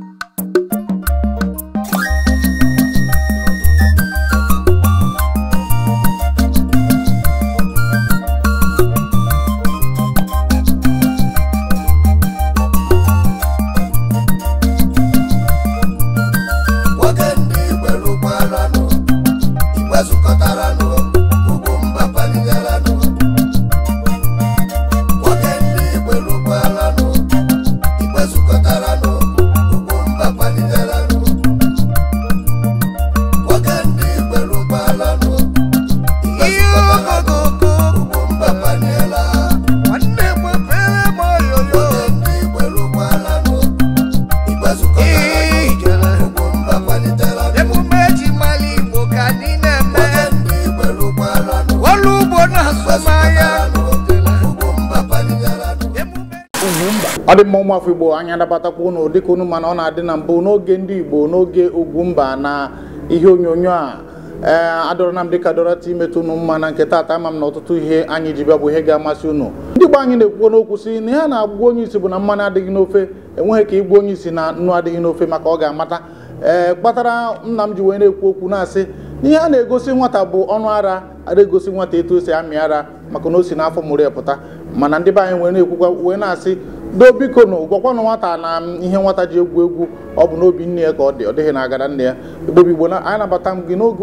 you afọ igbo anya nabatakwa ụnụ dịka unu mana ọ na-adị na mbụ n'oge ndị igbo n'oge ugwu mba na ihe onyonyo a ee adọrọ na m dịka dọrọ imetụ unu mma na nke taata ama m na ọtụtụ ihe anyị ji bịa bụ ihe ga-amasị unu ndị igbo anyị na-ekwukwo n'okwu si na ya na-agwa onye isi bụ na mmanụ adịghị n'ofe enweghị ka igbu onye isi na nnu adịghị n'ofe maka ọ ga-amata ee kpatara nna m ji wee na-ekwu okwu na-asị ihe a na-egosi nwata bụ ọnụ ara ada egosi nwata etu o amị ara maka na o si n'afọ mụrụ ya pụta mana ndị be anyị wee na-ekwukwa wee na-asị biko na gwakwana nwata na ihe nwata ji egwu egwu ọ bụ n'obi nne ya ka ọ dị ọ dịghị na agara nne ya igbobi igbo anyị nabata m gị n'oge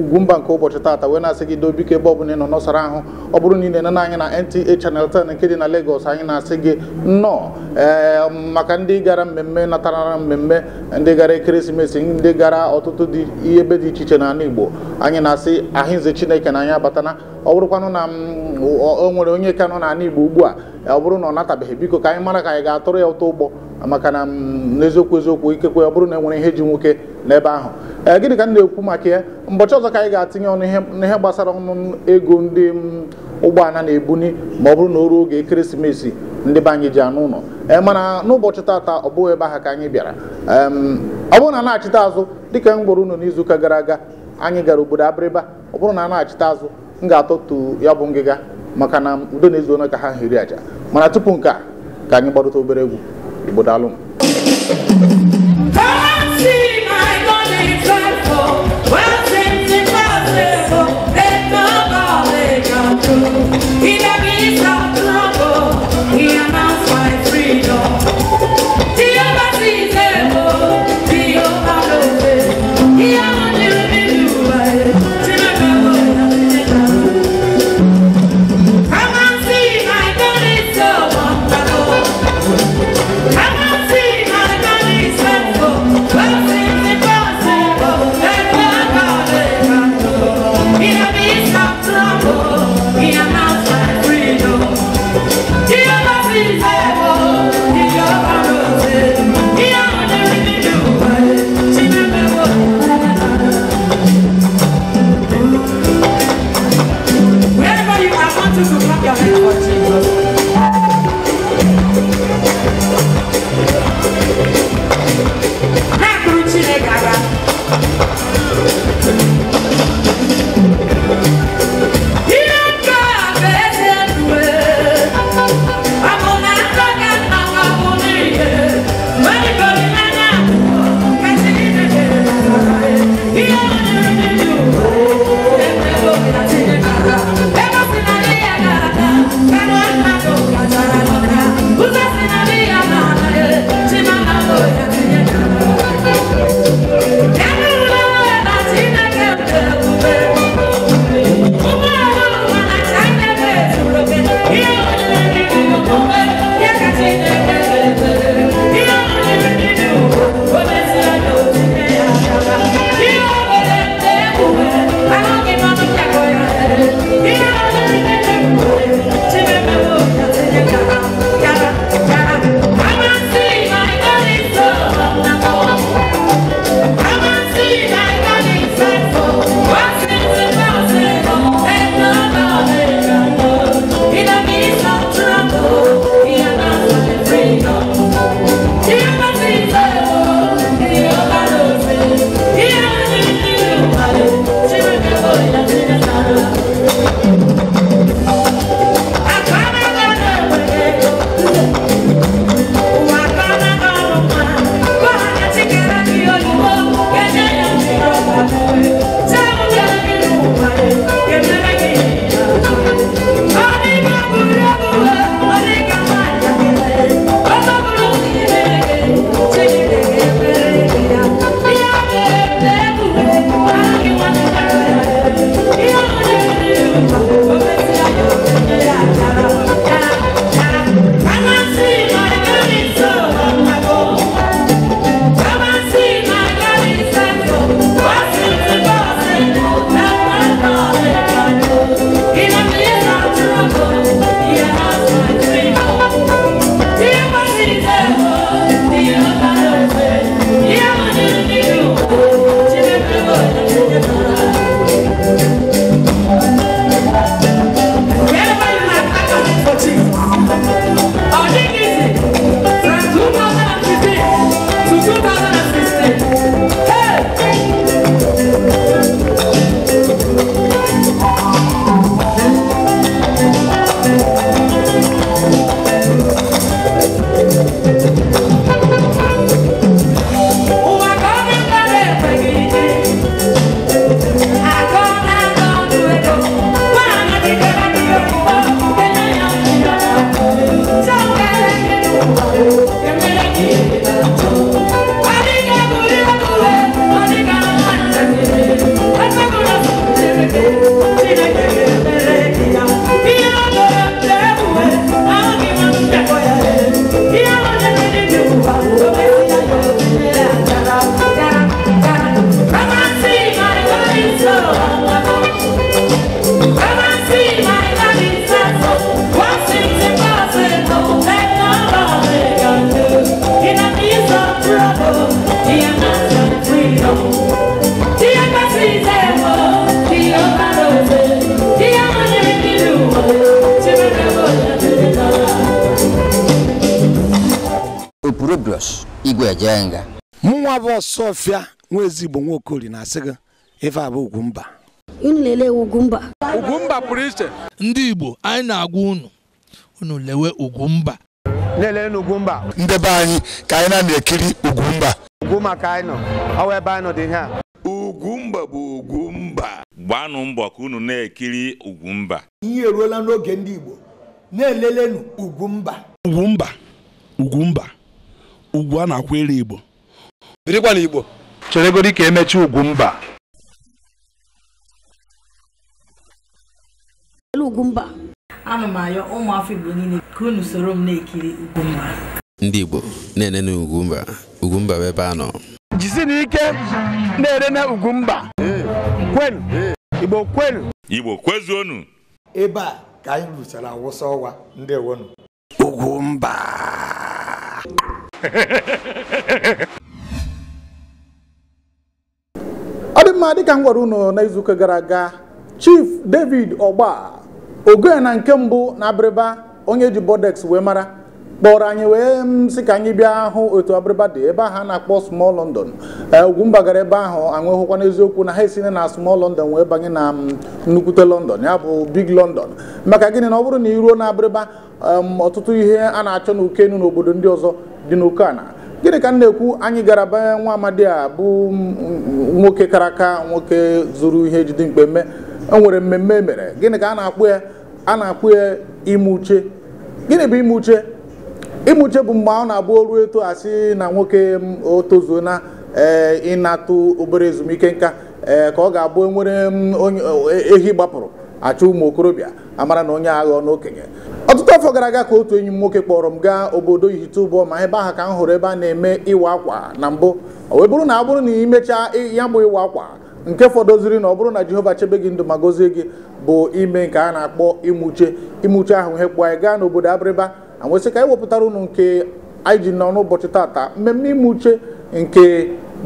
ugwumba nke ụbọchị taata wee na-asị gị dobiko ebe ọ bụla ị nọ nọsara ahụ ọ bụrụ na ị na-ene anyị na NTA chanel 10 nke dị na Lagos anyị na-asị gị nnọọ ee eh, maka ndị gara mmemme natara mmemme ndị gara ekeresimesi ndị gara ọtụtụ dị ebe dị iche iche n'ala Igbo anyị na-asị ahịnze Chineke na anyị abatana ọ bụrụkwanụ na mm, o nwere onye ka nọ n'ala Igbo ugbu a ọ bụrụ mm, e e, e, mm, mm, na ọ natabeghị biko ka anyị mara ka anyị ga-atụrụ ya ụtọ ụgbọ maka na n'eziokwu eziokwu ikekwe ọ bụrụ na enwere ihe ji nwoke n'ebe ahụ ee gịnị ka m na-ekwu maka ya mbọchị ọzọ ka anyị ga atinye ọnụ ihe gbasara ọnụ ego ndị ụgbọala na-ebuni ma ọ bụrụ na o ruo oge ekeresimesi ndị be anyị ji anụ ụlọ mana n'ụbọchị taata ọ bụghị ebe ahụ ka anyị bịara ọ bụrụ na na azụ dịka m gwara unu n'izuụka gara aga anyị gara obodo abịrịba ọ bụrụ na a na azụ m ga-atọtu ya bụ ngịga maka na udo na ezuona ka ha hiri aja mana tupu nke a ka anyị gbarụta obere egwu igbo daalụ He fịa nwa ezigbo nwa okori na-asị gị ife abụ Ugwumba unu lelee Ugwumba Ugwumba pụrụ iche ndị Igbo anyị na-agwa unu unu lewe Ugwumba lelee n'Ugwumba ndị be anyị ka anyị na-ekiri Ugwumba ugwu maka anyị nọ ọwa ebe anyị nọ dị ihe a Ugwumba bụ Ugwumba gbanụ mbọ ka unu na-ekiri Ugwumba ihe eruola n'oge ndị Igbo na-elelenu Ugwumba Ugwumba Ugwumba ugwu a na-akwụ elu Igbo birikwa na Igbo cheregodi ka emechi Ugwumba Ugwumba m ayọ ụmụafọ Igbo niile ka soro m na-ekiri Ugwumba ndị Igbo na-enene Ugwumba Ugwumba bụ ebe a nọ jisi n'ike na-enene Ugwumba kwenu Igbo kwenu Igbo kwezuonu ebe a ka anyị rụchara awụsa ọwa ndị ewonu Ugwumba ọ dị mma dịka m gwara unu n'izuụka gara aga chief david ọgba ogoe na nke mbụ na abịrịba onye ji bodex wee mara kpọrọ anyị wee sị ka anyị bịa hụ otu abịrịba dị ebe ahụ a na-akpọ small london e, ugwumba gara ebe ahụ anyị n'eziokwu na ha esina na small london wee banye na nnukwute london ya bụ big london maka gịnị na ọ bụrụ na iruo na abịrịba ọtụtụ ihe a na-achọ na n'obodo ndị ọzọ dị n'oke gịnị ka m na-ekwu anyị gara banye nwa amadi a bụ nwoke karaka nwoke zuru ihe jide mkpe mme enwere mmemme emere? mere gịnị ka a na-akpụ ya a na-akpụ ya ime uche gịnị bụ ime uche ime uche bụ mgbe ọ na-abụ oru eto asị na nwoke o tozuo na eh, ịnatụ obere ezumike nka ee eh, ka ọ ga-abụ e nwere eh, ehi gbapụrụ achọ ụmụ okorobịa amara na onye agha na okenye ọtụtụ afọ gara aga ka otu enyi m nwoke kpọrọ m gaa obodo Ihitubọ ma ebe ahụ ka m hụrụ ebe a na-eme ịwa akwa na mbụ o bụrụ na abụrụ na imechaa ya bụ ịwa akwa nke fọdụziri na ọ bụrụ na Jehova chebe gị ndụ ma gozie gị bụ ime nke a na-akpọ imuche imuche ahụ ihe kpụọ anyị gaa n'obodo Abịrịba anwesị ka anyị wepụtara ụnụ nke anyị ji nọ n'ụbọchị tata mmemme imuche nke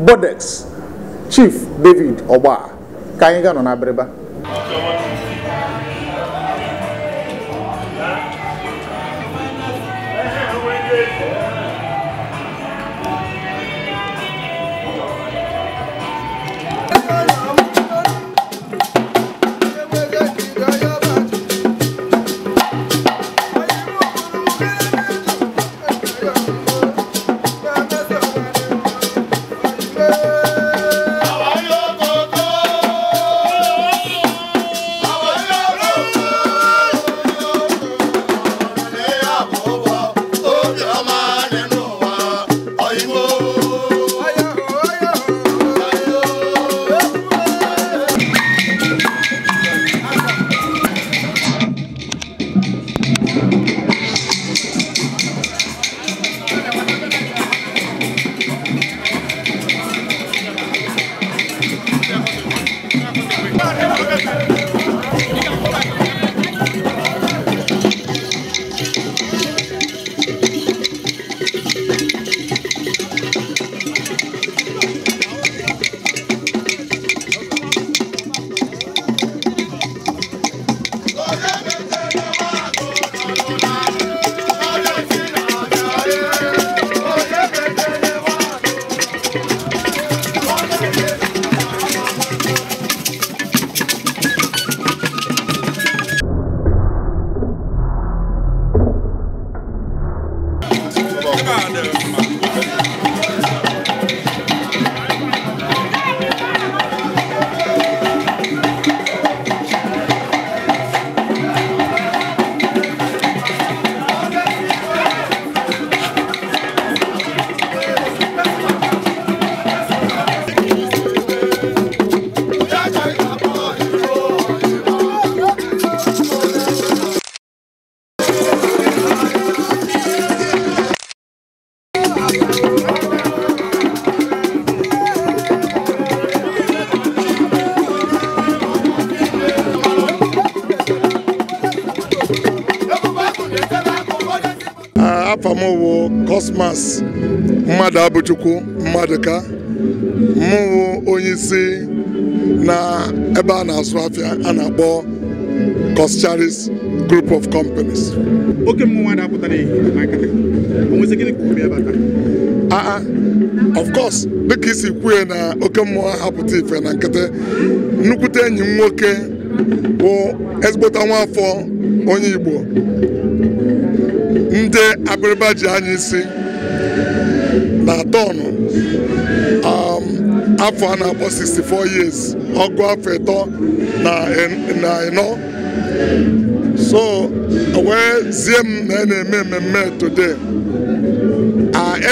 Bodex Chief David Ogba ka anyị ga nọ na Chukwu Mmadụka mụwụ onye isi na ebe a na asụ afịa a na-akpọ koscharis group of companies oke mmụọ na aa ah, ah, of course dịka isi kwue na oke mmụọ hapụta ife na nkịtị nnukwute enyi m nwoke bụ ezigbota afọ onye Igbo ndị abịrịba ji anya isi na tọnụ um, afọ a na-akpọ 64 years ọgụ afọ ịtọ na ịnọ so wee zie m na e na-eme mmemme today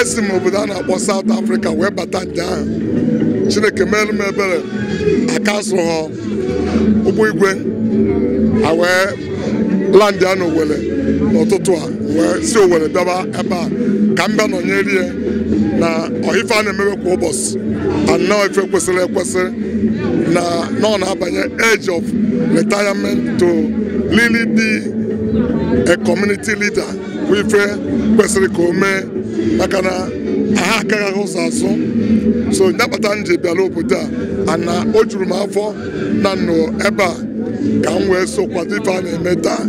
esi m obodo a na-akpọ South Africa wee bata nje ahụ Chineke merụ m ebere akasụrụ ha ụgbọ igwe a wee landị a n'Owerri n'ụtụtụ a si Owerri bịawa ebe a ka m bịa nọnyere ya na ọhife a na-emewe kwa ụbọchị anọ ife kwesịrị ekwesị na nọ na-abanye age of retirement to really be a community leader bụ ife kwesịrị ka o mee maka na aha akaghị ụzọ azụ so ya kpata m ji bịara obodo a ana o juru m afọ na nnụ ebe a ka m wee so kwado ife a na-eme taa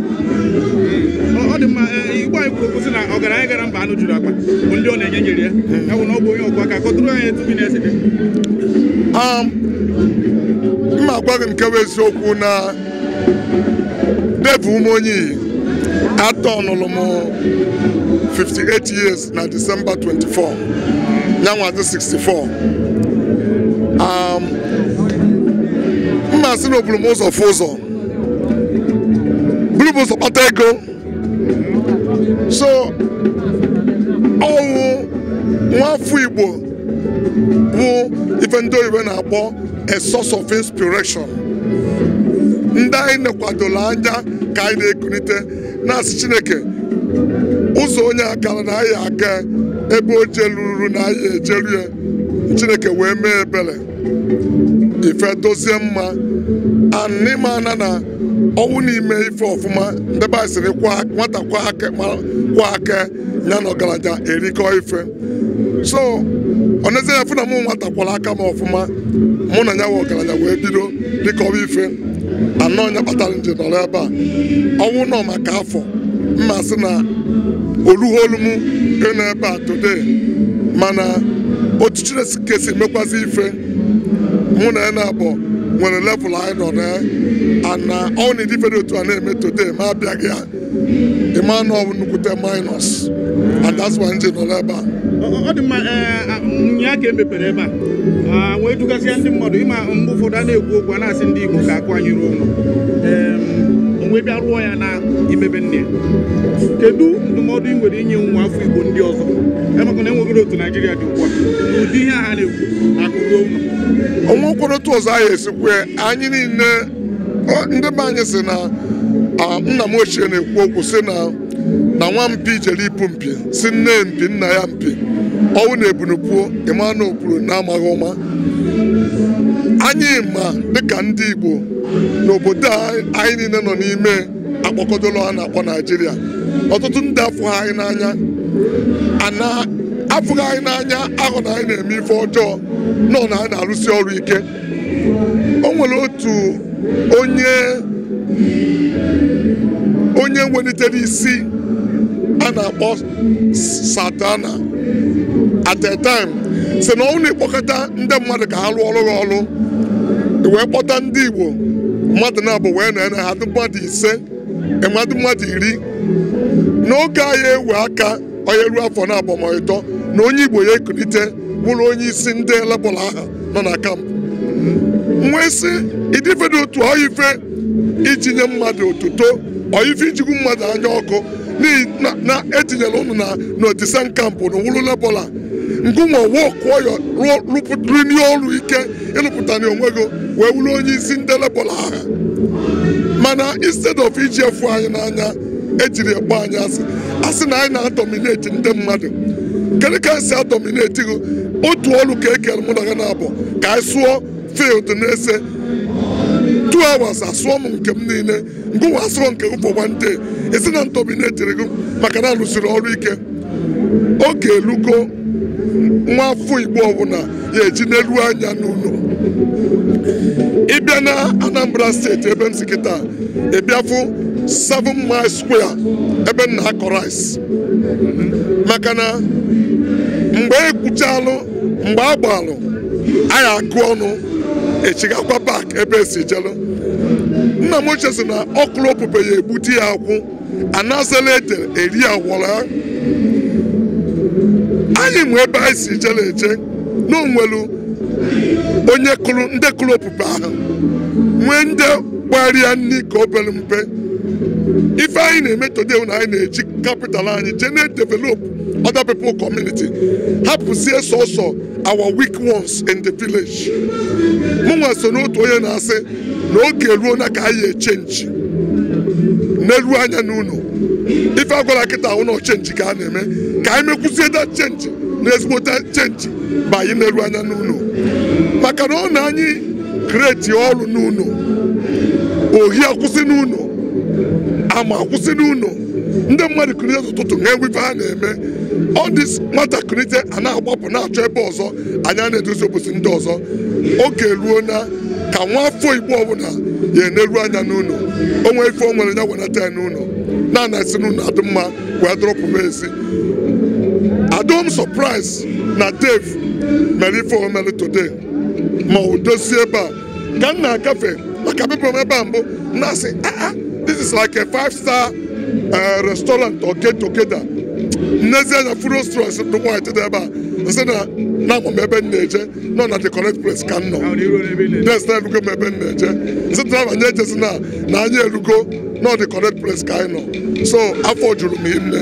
dị mma e, igbo anyị kwuru kwụsị na ọgaranya gara mba anụ juru akpa bụ ndị ọ na-enye nyere ya ya bụ na ọ bụ onye ọgụ aka kọtụrụ anyị etu bi um, na-esite mma agwa gị nke bụ eziokwu na devụ ụmụ onye atọ nụrụ m 58 years na December 24 ya dị 64 mma sị na m ụzọ fụ ụzọ buru m ụzọ kpata ego so ọnwụ nwafọ Igbo bụ ife ndị iwe na-akpọ a source of inspiration ndị anyị nekwadola anya ka anyị na-ekunite na-asị Chineke ụzọ onye akara na anyị aga ebe o jeluru na anyị ejelu ya Chineke wee mee ebere ife dozie mma anịmana na ọnwụ n'ime ife ọfụma ndebe anyị nwata kwa aka ya na ọgaranya erikọ ife so ọ nezie ya fụ na mụ nwata kwara aka m ọfụma mụ na ya nwe ọgaranya wee bido ọba ife anọ ya kpatara nje nọrọ ebe a ọnwụ nọ maka afọ mmasị na olugholu m ịnọ ebe a today mana otu Chineke si ife mụ na ya na-abụ nwere level anyị nọ na ana uh, ọ na-edi fere otu a na-eme today ma abịaghị ya ịma na ọ nnukwute minus and that's why nji nọ n'ebe a ọ dị mma e, nya ka emepere ebe a wee dugasịa ndị mmadụ ịma mgbe ụfọdụ a na-ekwu okwu a na-asị ndị Igbo ka akwanyere ụlọ wee bịa rụọ ya na imebe nne kedu ndụmọdụ ị nwere inye nwa afọ Igbo ndị ọzọ emekwa na enweghị otu dị a ụdị ihe na akụrụ onwe otu ọzọ anyị esikwe anyị niile ndị be anyị si na nna m ochie na-ekwu okwu si na na nwa mpi jere ipu mpi si nne mpi nna ya mpi ọnwụ na ebunupuo ịma na opuru na amaghị ụma anyị ma dịka ndị Igbo n'obodo anyị niile nọ n'ime akpọkọdolo a na-akpọ Naijiria ọtụtụ ndị afọ anyị n'anya ana afụghị anyị n'anya ahụ na anyị na-eme ife ọjọọ nọ na anyị na-arụsi ọrụ ike o nwere otu onye onye welitere isi a na-akpọ satana at a time si na ọnwụ na-ekpọkọta ndị mmadụ ka ha rụọ ọrụ ha ọrụ wee kpọta ndị Igbo mmadụ na-abụ wee na na ha mmadụ ise mmadụ mmadụ iri n'oge anyị ewe aka onye ruo afọ na agbamakwụkwọ na onye igbo ya ekulite bụrụ onye isi ndị lebọl aha nọ na kampụ nwee sị idifedo otu oife iji nye mmadụ otuto oife ijigwu mmadụ anya ọkụ na etinyela ụnụ na n'otisan kampụ na wụrụ lebọla ngụnwa wụọ rụpụtarihe ọrụ ike ịrụpụta na onwe gị wee wụrụ onye isi ndị lebọla aha mana instead of iji efu anyị n'anya ejiri ekpe anyị asị a na anyị na-adọmineti ndị mmadụ kedu ka anyị si adọmineti gị otu ọrụ ka ekere mụ na gị na-abụ ka anyị sụọ field na-ese 2 asụọ m nke m niile mgbe nwa asụọ nke m for one day esi na ndominetiri gị maka na alụsiri ọrụ ike oge elugo nwa afọ igbo ọbụla ya eji n'elu anya n'ụlọ ịbịa na anambra steeti ebe m si kịta ịbịafụ 7 miles square ebe nna akọ maka na mgbe ekwuchalụ mgbe a gbalụ anyị akụ ọnụ echigakwa park ebe esi echelụ nna m ochie sị na ọkụrụ ya egbute ya akwụ anazela ede eri awọrọ ya anyị nwe ebe anyị si jere eje na onye kụrụ ndị kụrụ opupe ahụ nwee ndị gbara ya nri obere mpe ife anyị na-eme today na anyị na-eji capital anyị jee na-develop other people community hapụzie sọsọ our weak ones in the village mụnwa so n'otu onye na-asị na oge ruo na ka anyị echenji n'elu anya n'ụlọ ife agwara kịta ụlọ chenji ka a na-eme ka anyị mekwuzie da chenji na ezigbote chenji ma anyị n'elu anya n'ụlọ maka na ọ na anyị kreti ọrụ n'ụlọ ohi akwụsị n'ụlọ ama akwụsị n'ụlọ ndị mmadụ kụrie ụtụtụ na enwibe a na-eme ọ dị nwatakịrị je a na-agbapụ na-achọ ebe ọzọ anya na-eduzi obosi ndị ọzọ oge ruo na ka nwa afọ igbo ọbụla ya eneru anya n'ụlọ onwe ife o nwere ya wenata ya n'ụlọ na-ana esi n'ụlọ adị mma wee dọrọpụ m adom surprise na Dave mere ife omere today ma o dozie ebe a ka m na-agafe maka bịbụrụ ebe a mbụ na-asị aa ah, ah, this is like a five star uh, restaurant or get together nnezie na Furu restaurant ndị nwaanyị dị ebe a na na-ama ebe m na na the correct place ka m na nye na na correct place so afọ juru m ime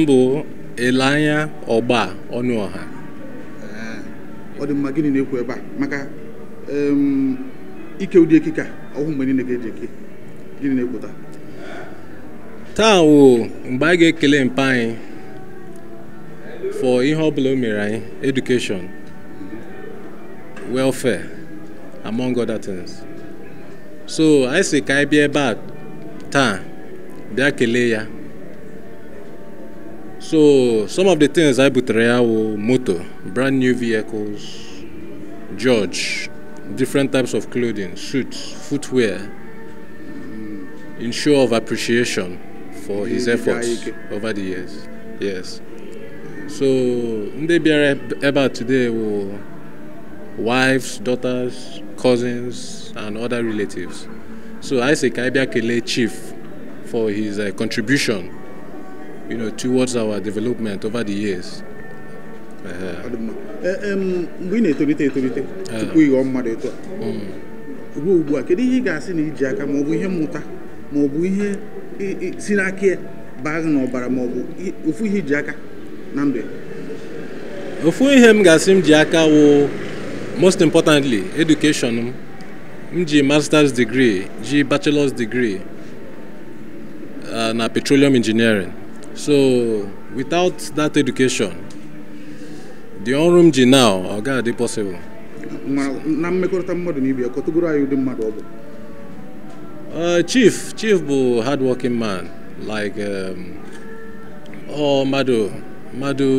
m bụ Elanya Ọgba Ọnụọha ọ dị mma gịnị na-ekwu ebe a maka ike ụdị ekike ọhụụ mgbe niile ga-eji eke gịnị na-ekwuta taa wo mgbe a ga-ekele mpa anyị for ihe ọbụla o mere anyị education welfare among other things so anyị si ka anyị bịa ebe a taa bịa kelee ya So some of the things I put Reao motor, brand new vehicles, George, different types of clothing, suits, footwear, in show of appreciation for his efforts over the years. Yes. So ndị bịara ebe today will wives, daughters, cousins and other relatives. So I say ka anyị chief for his uh, contribution you know, towards our development over the years. Uh-huh. Eh, ị na-etolite etolite ofu ihe m ga-asị m ji aka wụ most importantly education m m ji masters degree ji bachelor's degree uh, na petroleum engineering so without that education the orum m ji now oga gaghị possible na mmekọrịta mmadụ anyị ụdị mmadụ uh, chief chief bụ hardworking man like um, ọ mmadụ mmadụ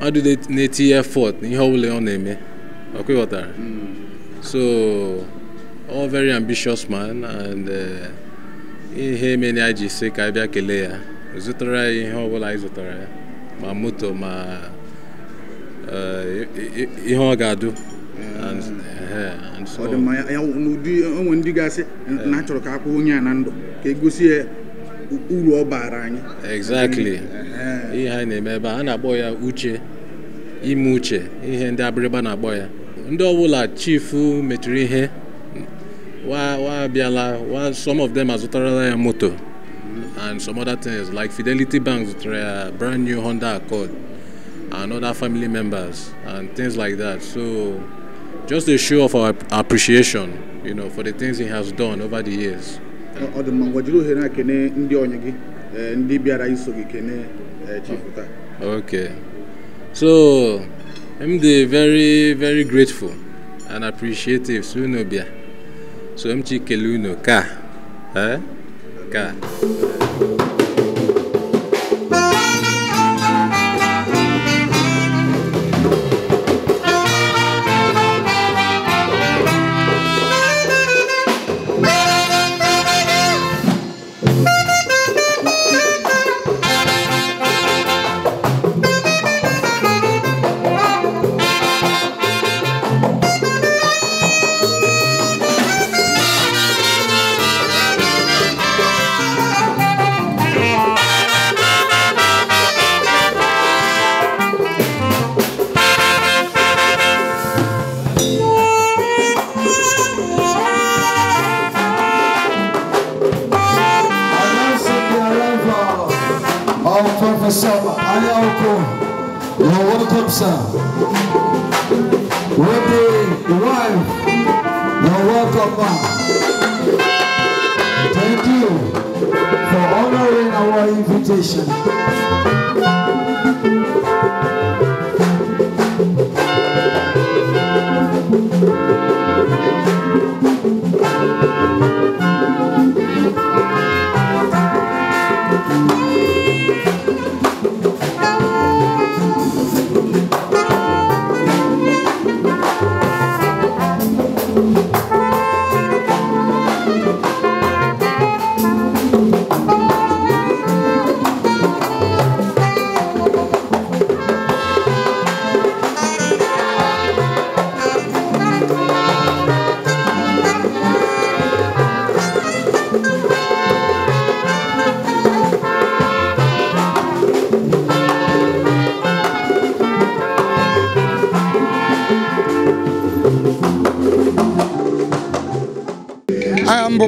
mmadụ na effort n'ihe ọbụla ọ na-eme ọkweghọtara hmm. so ọ very ambitious man and uh, ihe mere anyị ji say ka anyị bịa kelee ya zụtara ya ihe bụla anyị zụtara ya ma moto ma eh, ihe ọ ga-adụ onwe ndị gasị na achọrọ ka akwụ onye a na ndụ ka egosi ya uru ọ baara anyị exactly ihe anyị na-eme ebe a na-akpọ ya uche ime uche ihe ndị abịrịba na-akpọ ya ndị ọbụla chifu metụrụ ihe wa abịala some of them azụtarala ya moto and some other things like Fidelity Bank's uh, brand new Honda Accord and other family members and things like that. So just a show of our appreciation, you know, for the things he has done over the years. Okay. So I'm the very, very grateful and appreciative So I'm Chikeluno Ka. Eh? か。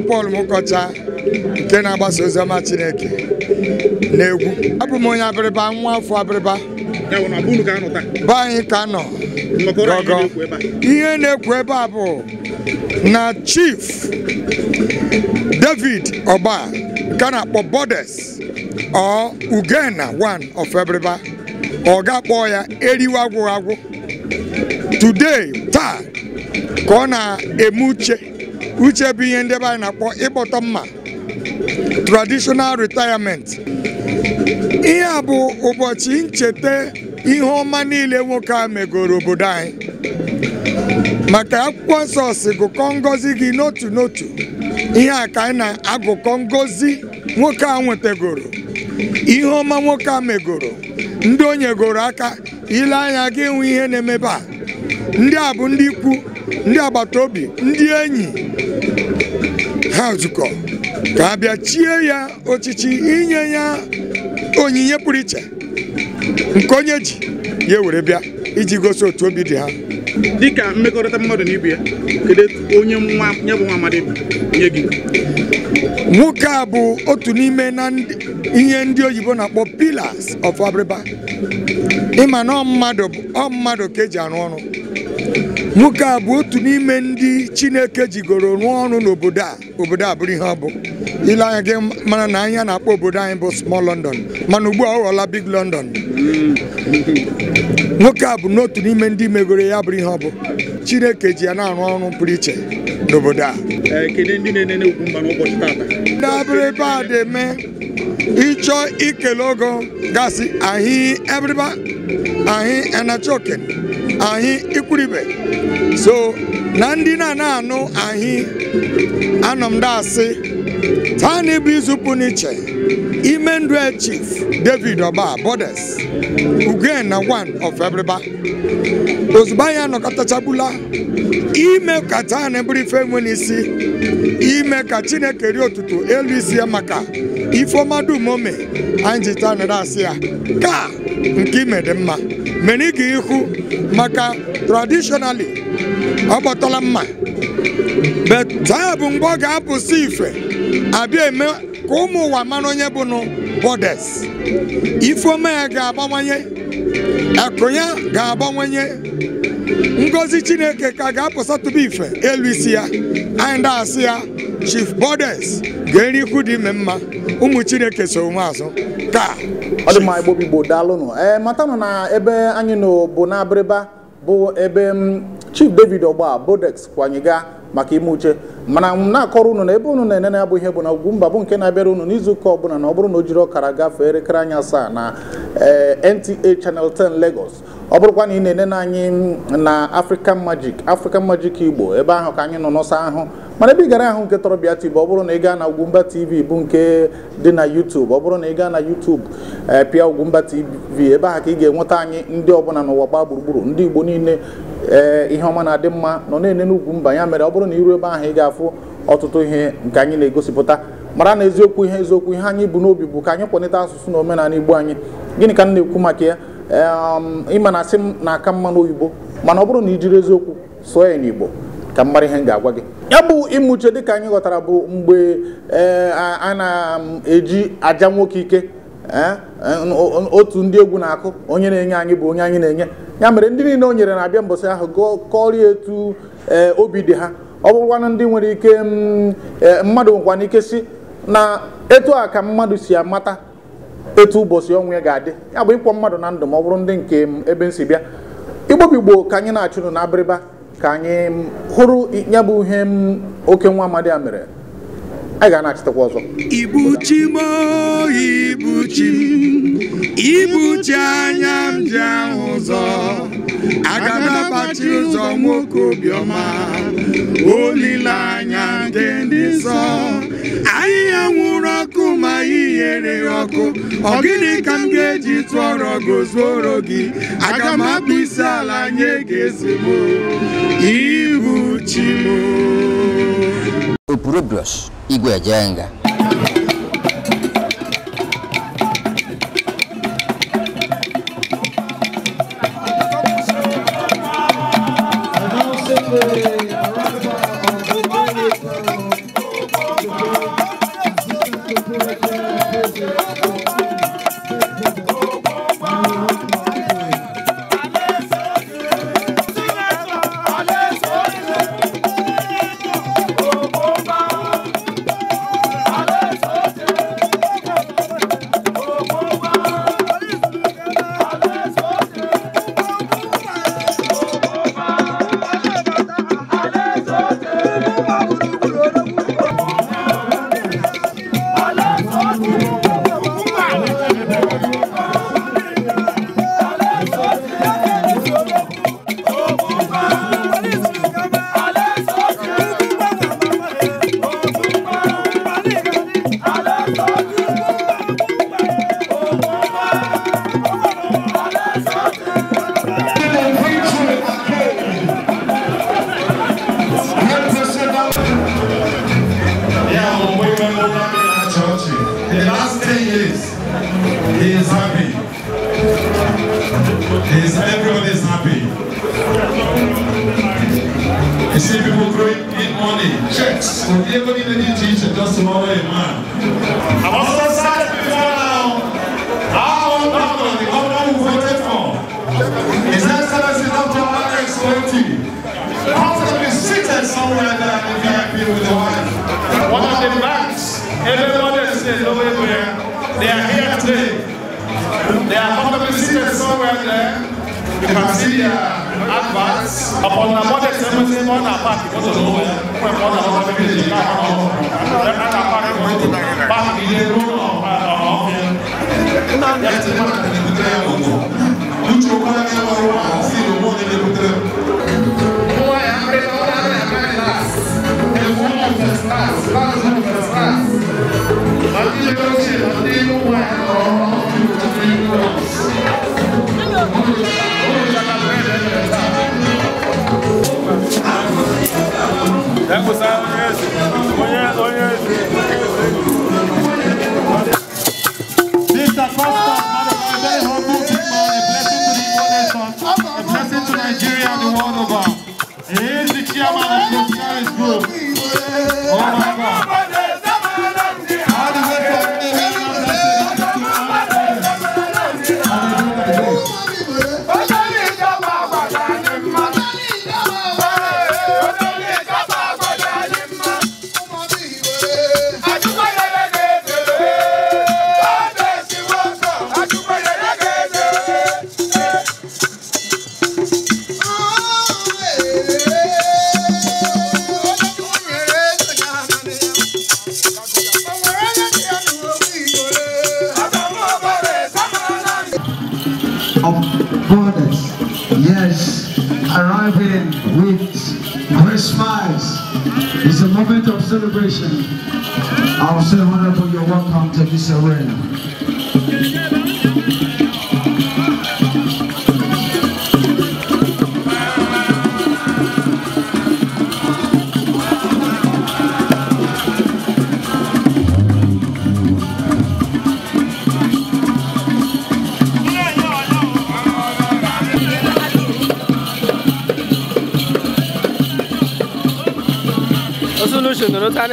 bụ Pọl Mụkọcha nke na-agbasa oziọma Chineke na-egwu. abụ m onye abịrịba nwa afọ abịrịba be anyị ka nọ gọgọ ihe na-ekwu ebe a bụ na Chief David ọba nke na-akpọ Bodes ọ Ugena one of Ebiriba ọ ga-akpọ ya eriwe agwụ agwụ today taa ka ọ na-eme uche uche bụ ihe ndị ebe anyị na-akpọ ịkpọtọ mma traditional retirement ihe a bụ ụbọchị ncheta ihe ọma niile nwoke a megoro obodo anyị maka akwụkwọ nsọ gụkọ ngọzi gị n'otu n'otu ihe a ka anyị na-agụkọ ngọzi nwoke a nwetagoro ihe ọma nwoke a megoro ndị onye nyegoro aka ile anya gị enwe ihe na-emebe a ndị a bụ ndị ikwu ndị agbata obi ndị enyi ha zukọ ka a bịa chie ya ọchịchị inye ya onyinye pụrụ iche nke onye ji ya were bịa iji gosi otu obi dị ha dịka mmekọrịta mmadụ na ibe ya kedu onye nwa bụ nwa nye gị nwoke a bụ otu n'ime na ihe ndị oyibo na-akpọ pillars of Abịrịba ịma ọ mmadụ ka eji arụ ọrụ nwoke a bụ otu n'ime ndị chineke jigoro rụọ ọrụ n'obodo a obodo a bụrụ ihe ọ bụ ile anya gị mana na anya na-akpọ obodo anyị bụ small london mana ugbu a ọ ghọọla big london nwoke a bụ n'otu n'ime ndị megoro ya bụrụ ihe ọ bụ chineke ji ya na-arụ ọrụ pụrụ iche n'obodo a dabụrụ ebe a dị eme ịchọ ikele ogo gasị ahị anyị enachoken anyị ikwuribe so na ndị na anụ anyị anọ taa na ịbụ izupụ n'iche ime ndụ chief david oba borders ugen na 1 of ebriba ozugbo anyị anọkọtachabula ime ka taa na bụrụ ife nwe n'isi ime ka chineke rie otutu elu isi ya maka ifeọma dum anyị ji taa dasị ya ka nke ime dị mma meniga ihu maka traditionally ọ mma but taa bụ mgbe ọ ga-apụsị ife abịa eme ka ụmụ ụwa mara onye bụnụ bọdes ifeoma ya ga-abawanye akụ ya ga-abawanye ngozi chineke ka ga-apụsatụba ife elu isi ya anyị asị ya chief bodes ga-eri ikwu dị ime mma ụmụ chineke so onwe azụ ka ọ dị mma igbobi igbo daalụnụ ee eh, matanụ na ebe anyị nọ bụ n'abịrịba bụ ebe mm, chief david ọgba bodex kwanyega maka ime uche mana na-akọrọ unu na ebe unu na-enene abụ ihe bụ na ugwu mba bụ nke na-abịara unu n'izu ụka ọbụla na ọ bụrụ na o jiri ọkara gafee elekere anya asaa na eh, NTA Channel 10 Lagos ọ bụrụkwa na ị na na anyị mm, na African Magic African Magic Igbo ebe ahụ ka anyị nọ n'ọsọ ahụ mana ebe ị gara ahụ nke Torobịa TV ọ bụrụ na ị gaa na Ugwumba TV bụ nke dị na YouTube ọ bụrụ na ị gaa na YouTube eh, pịa Ugwumba TV ebe ahụ ka ị ga-enweta anyị ndị ọbụla n'ụwa gbaa gburugburu ndị Igbo niile ee eh, ihe ọma na-adị mma nọ na-ene n'Ugwumba ya mere ọ bụrụ na iru ebe ahụ ị ga-afụ ọtụtụ ihe nke anyị na-egosipụta mara na eziokwu ihe eziokwu ihe anyị bụ n'obi bụ ka anyị kwalite asụsụ na omenala Igbo anyị gịnị ka m na-ekwu maka ya eh, um, ịma na asị m na aka mma n'oyibo mana ọ bụrụ na i jiri eziokwu sụọ ya n'Igbo ka m ihe m ga-agwa gị ya bụ ịmụche dịka anyị ghọtara bụ mgbe e, a na-eji aja nwoke ike e, otu ndị egwu na-akụ onye na-enye anyị bụ onye anyị na-enye ya mere ndị niile o nyere na-abịa mbọsị ahụ kọrịa etu e, obi dị ha ọ bụrụkwanụ ndị nwere ike mmadụ nwekwana ike si na etu a ka mmadụ si amata etu ụbọchị ọnwụ ya ga-adị ya bụ ịkpọ mmadụ na ndụ ma ọ bụrụ ndị nke ebe m si bịa igbobi ka anyị na-achụnụ na abịrịba ka anyị hụrụ ya bụ ihe oke nwa amadi a mere a ga na-achịtakwa ọzọ ibuchi m ibuchi ibuchi anya m ji ahụ ụzọ aga m abachi ụzọ nwoke obiọma olileanya ndị ndị nsọ ya nwụrụ ọkụ ma ihere ọkụ ọ gịnị ka m ga-eji tụọrọ gozuoro gị aga m akpụ isi ala nye ga ezigbo ibuchi m Opurobios Igwe nga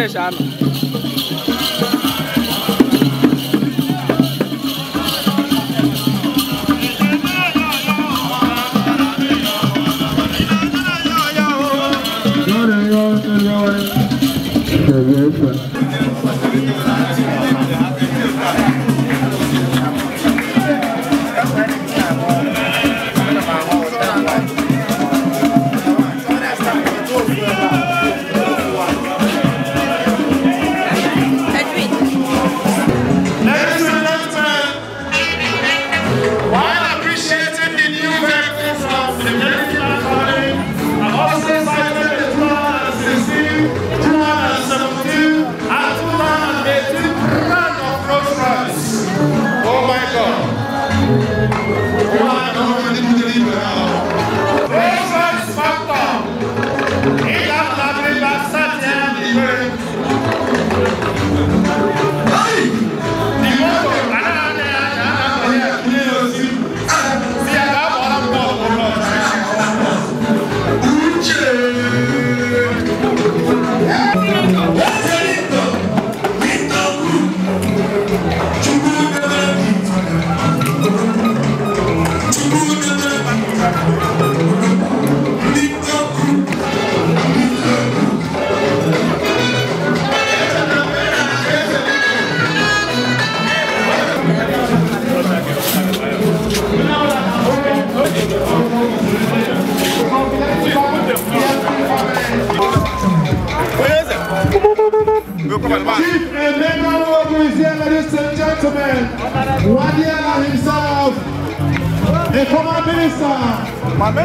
dẹ̀ ṣàánú. Yeah, yeah, yeah. Chief Emmanuel Ogu is here, ladies and gentlemen. Wadiela himself, the former minister.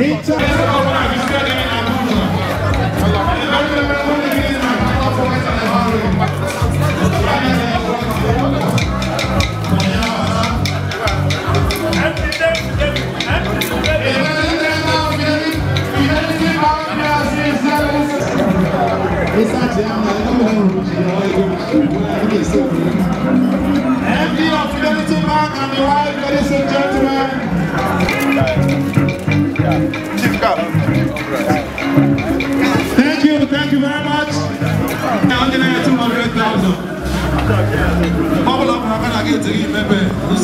In charge of research of Unity Bank and the wife, ladies and gentlemen. Chief Cap. Thank you, thank you very much. Now I'm gonna two hundred thousand. Bubble up, I'm gonna get to you, baby. This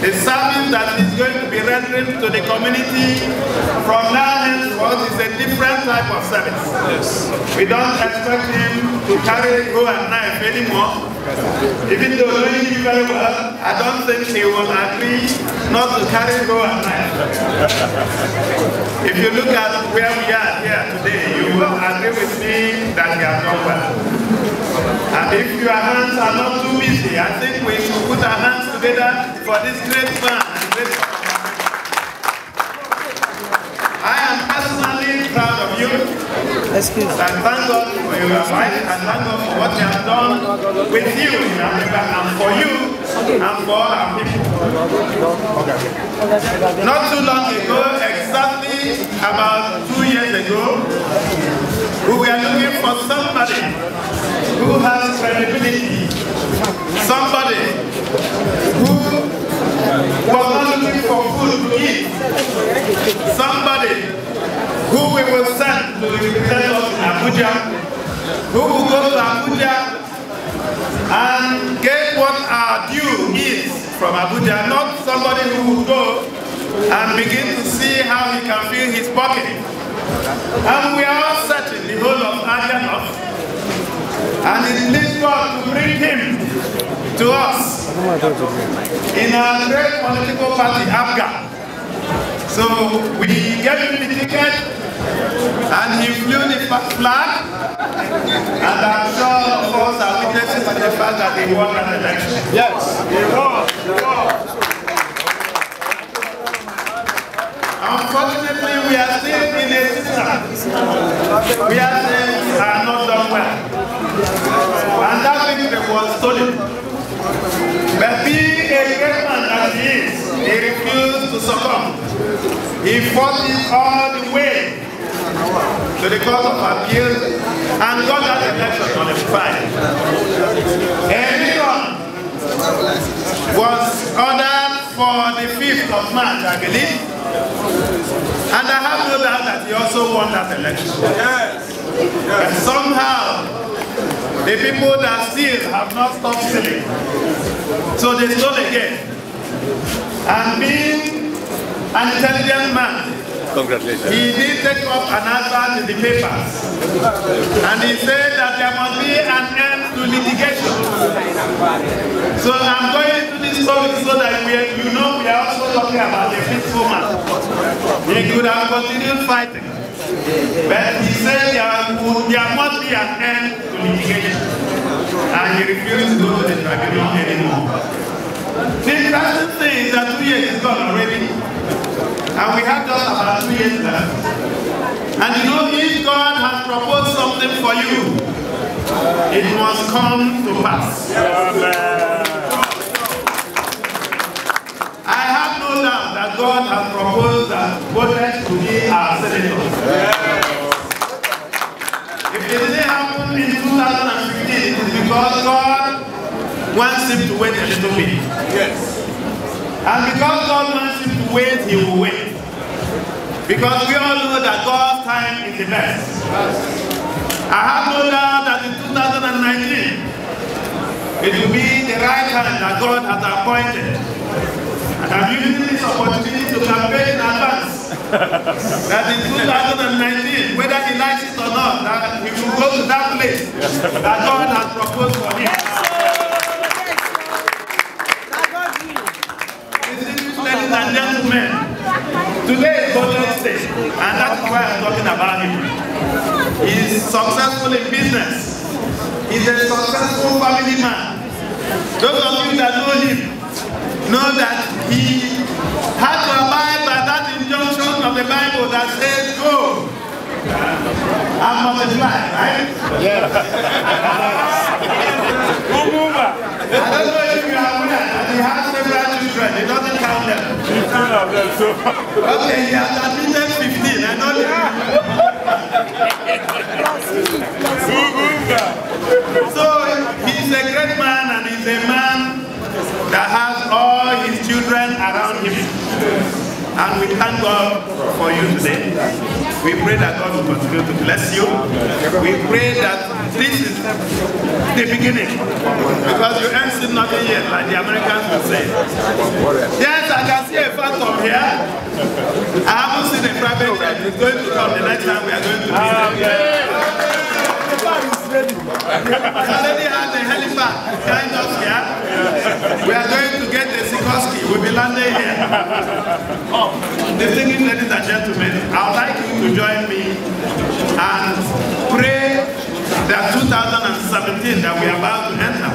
The service that is going to be rendered to the community from now henceforth is a different type of service. Yes. We don't expect him to carry go and knife anymore. Even though knowing him very well, I don't think he will agree not to carry a at knife. if you look at where we are here today, you will agree with me that we has done well. And if you are are not too busy. I think we should put our hands together for this great man. I am personally proud of you. Excuse me. And thank God for your life and thank God for what you have done with you in Africa and for you and for all our people. Not too long ago, exactly about two years ago, we are looking for somebody who has credibility, somebody who was not looking for food to eat, somebody who we will send to represent us in Abuja, who will go to Abuja and get what our due is from Abuja, not somebody who will go and begin to see how he can fill his pocket. And we are all searching the whole of Aganoth. And it pleased God to bring him to us in our great political party, Abga. So we gave him the ticket and he flew the flag and I'm sure of us are witnesses to the fact that he won an election. Yes, he won, he won. Unfortunately, we are still in a system. season where things are not done well. And that victory was stolen. But being a great man that he is, he refused to succumb. He fought it all the way to the court of appeal and got that election on nullified. Everyone was ordered for the 5th of March, I believe, And I have no doubt that he also won that election. Yes. yes. And somehow, the people that steal have not stopped stealing. So they stole again. And being an intelligent man, Congratulations. He did take up an advert in the papers. And he said that there must be an end to litigation. So I'm going to this topic so that we, you know we are also talking about the peaceful man. He could have continued fighting. But he said there, would, there must be an end to litigation. And he refused to go to the tribunal anymore. The interesting thing is that two years is gone already. And we have just about two years left. And you know, if God has proposed something for you, it must come to pass. Amen. know now that God has proposed that voters to be our senators. Yeah. If it didn't happen in 2015, it's because God wants him to wait a little bit. Yes. And because God wants him to wait, he will wait. Because we all know that God's time is the best. I have no doubt that in 2019, it will be the right time that God has appointed And I'm using this opportunity to campaign in advance that in 2019, whether he likes it or not, that he will go to that place that God has proposed for him. Ladies and gentlemen, today is Golden Day, and that's why I'm talking about him. He's successful in business. He's a successful family man. Those of you that know him, know that he had to abide by that injunction of the Bible that says, go and multiply, right? Yes. I don't know if you have one. He has several children. It doesn't count them. okay, he has admitted And we thank God for you today. We pray that God will continue to bless you. We pray that this is the beginning. Because you ain't seen nothing yet, like the Americans will say. Yes, I can see a phantom here. I haven't seen a private jet. It's going to come the next time we are going to meet them. Ah, already had the helipad, kind of, yeah? We are going to get the Sikorsky. We'll be landing here. Oh, the thing is, ladies and gentlemen, I would like you to join me and pray that 2017 that we are about to enter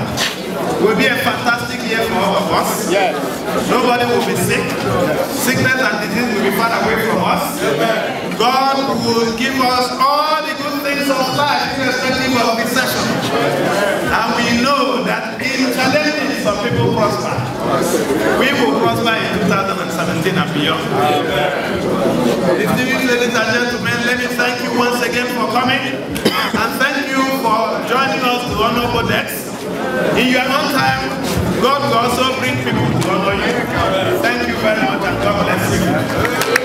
will be a fantastic year for all of us. Yes. Nobody will be sick. Sickness and disease will be far away from us. God will give us all minutes of life in a study of his session. And we know that in challenges, some people prosper. We will prosper in 2017 and beyond. Distinguished ladies and gentlemen, let me thank you once again for coming. And thank you for joining us to honor Codex. In your own time, God will also bring people to honor you. Thank you very much and God bless you.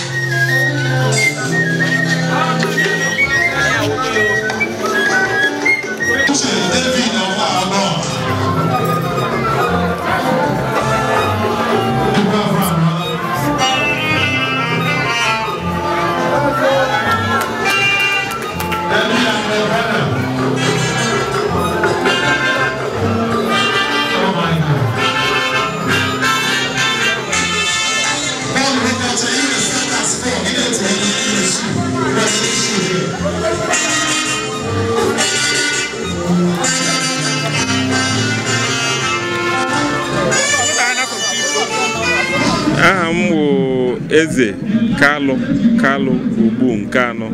kalụ kalụ ugbu nke anọ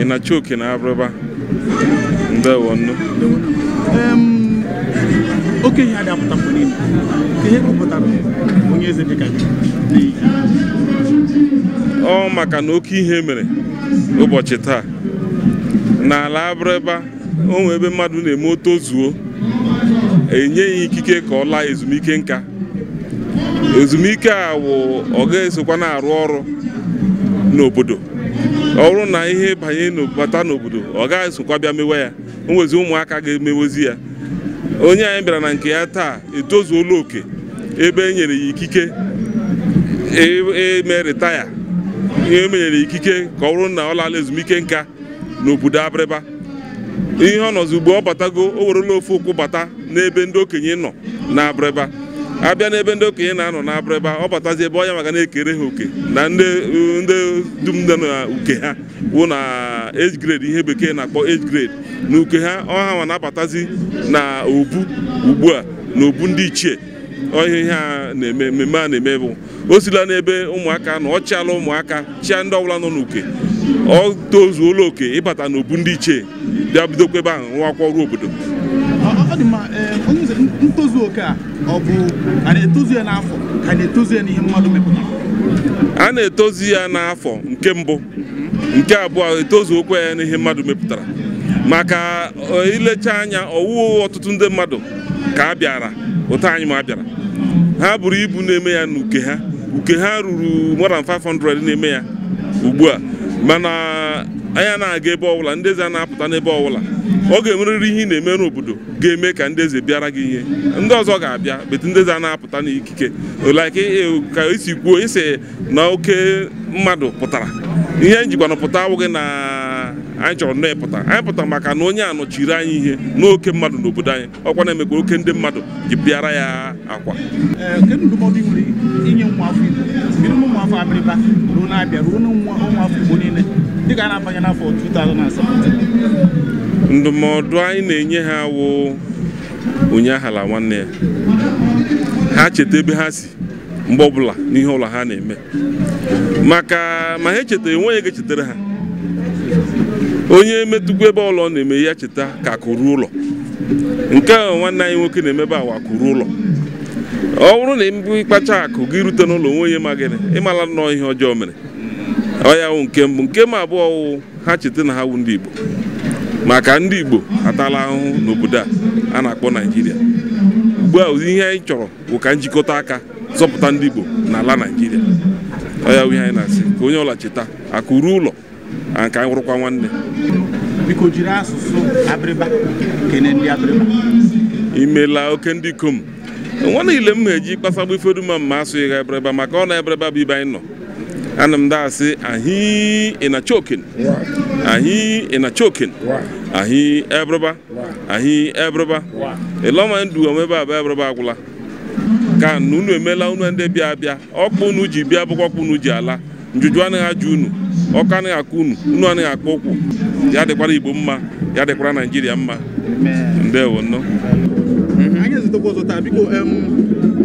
ị na-achọ oke na abụrụba ndewo nnu oke ihe adị apụta mgbe ka ihe kpụpụtara onye eze dịka ọ maka na oke ihe mere ụbọchị taa n'ala abụrịba onwe ebe mmadụ na-eme zuo, enye ya ikike ka ọ laa ezumike nka ezumike a wụ ọ ga-esokwa na-arụ ọrụ n'obodo ọ bụrụ na ihe banye bata n'obodo ọ gaghị esokwa bịa mewe ya onwezi ụmụaka ga-emewezi ya onye anyị bịara na nke ya taa etozuola oke ebe e nyere ya ikike eme e ritaya ihe emenyere ikike ka ọ bụrụ na ọ ezumike nka n'obodo Abịrịba ihe ọ nọzi ugbo ọ batago o werela ofe ụkwụ bata n'ebe ndị okenye nọ na abịa n'ebe ndị okenye na-anọ na-abụrụ ebe ọ batazi ebe onye maka na-ekere ha oke na ndị dum na uke ha wụ na age grade ihe bekee na-akpọ age grade na uke ha ọha nwa na-abatazi na obu ugbu a na obu ndị ichie ọhịa ihe a na-eme mmemme a na-eme bụ o sila n'ebe ụmụaka nọ ọ chịala ụmụaka chịa ndị ọbụla nọ n'uke ọ tozuola oke ịbata n'obu ndị ichie bịa bidokwa ebe ahụ nwa akwọ ọrụ obodo oke a ọ bụ a na-etozu ya n'afọ ka na ya n'ihe mmadụ mepụtara a na ya n'afọ nke mbụ nke abụọ etozu okwe ya n'ihe mmadụ mepụtara maka e, ilecha anya ọwụwa ọtụtụ ndị mmadụ ka a bịara ụtọ anyị ma bịara ha buru ibu na-eme ya n'uke ha uke ha ruru 500 na-eme ya ugbu a mana anya na-aga ebe ọbụla ndị eze a na-apụta n'ebe ọbụla ọ ga-enwerịrị ihe ị na-eme n'obodo ga-eme ka ndị eze bịara gị ihe ndị ọzọ ga-abịa bete ndị eze a na-apụta n'ikike like e, e, ka esi kwuo ise na oke mmadụ pụtara ihe njikwana e pụta awụghị na anyị chọrọ nne pụta anyị pụta maka na onye a nọchiri anyị ihe n'oke mmadụ n'obodo anyị ọkwa na-emekwa oke ndị mmadụ ji bịara ya akwa eh, na-abịa afọ dịka a na-abanye n'afọ 2017 ndụmọdụ anyị na-enye ha wụ ụnyaahụla nwanne ya ha cheta ebe ha si mgbe ọbụla n'ihe ụlọ ha na-eme maka ma ha echetara enweghị ga chetara ha onye metụkwa ebe ụlọ na-eme ya cheta ka akụrụ ụlọ nke a nwanne anyị nwoke na-emebe awa akụrụ ụlọ ọ bụrụ na mbụ ịkpacha akụ gị rute n'ụlọ onwe onye ma gịnị ịmala nnọọ ihe ọjọọ mere ọ ya wụ nke mbụ nke ma abụọ wụ ha cheta na ha wụ ndị Igbo maka ndị Igbo atala ahụhụ n'obodo a a na-akpọ Naijiria ugbu a ụdị ihe anyị chọrọ bụ ka njikọta aka zọpụta ndị Igbo n'ala Naijiria ọ ya ihe anyị na-asị ka onye ọla cheta aka ruo ụlọ ka anyị hụrụkwa nwanne biko jiri asụsụ kene imela oke ndị ikom nwa niile m na-eji kpasagbu ifeduma m ma asụghị ha abịrịba maka ọ na-abịrịba bụ ibe anyị nọ ana m daasị ahị ịnachokin ahị ịnachokin ahị ebrụba ahị ebrụba ịlọma ndu omebe abụ ebrụba agwụla ka unu emela unu ndị bịa abịa ọkpa unu ji bịa bụkwa ọkpa unu ji ala njuju anaghị ajụ unu ọkụ anaghị akụ unu unu anaghị akpọ ụkwụ ya dịkwara igbo mma ya dịkwara naijiria mma ndewo nnọọ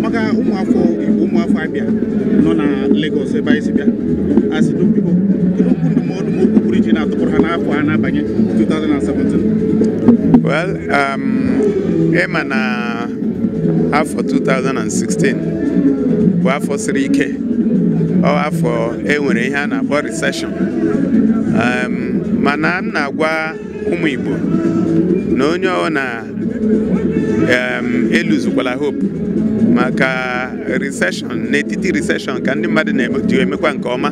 maka ụmụafọ igbo ụmụafọ abịa nọ na Lagos ebe anyị si bịa asị na biko kedu okwu ndụmọdụ ma okwu pụrụ iche na-atụpụrụ ha n'afọ a na-abanye 2017 well ema um, na afọ 2016 bụ afọ siri ike ọ afọ e nwere ihe a na-akpọ recession um, mana m na-agwa ụmụ Igbo na onye ọ na um, eluzukwala hope maka riseshọn n'etiti riseshọn ka ndị mmadụ na-eji emekwa nke ọma